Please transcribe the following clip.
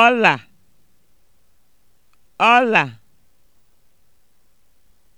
Ọla